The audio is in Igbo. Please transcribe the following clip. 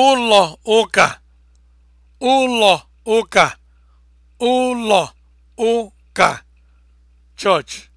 ụlọ ụka ụlọ ụka ụlọ ụka chọọchị